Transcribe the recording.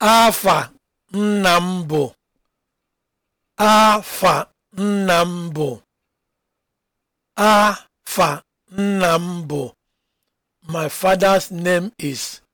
afa nna m bụ afa nna m bụ afa nna m bụ my father's name is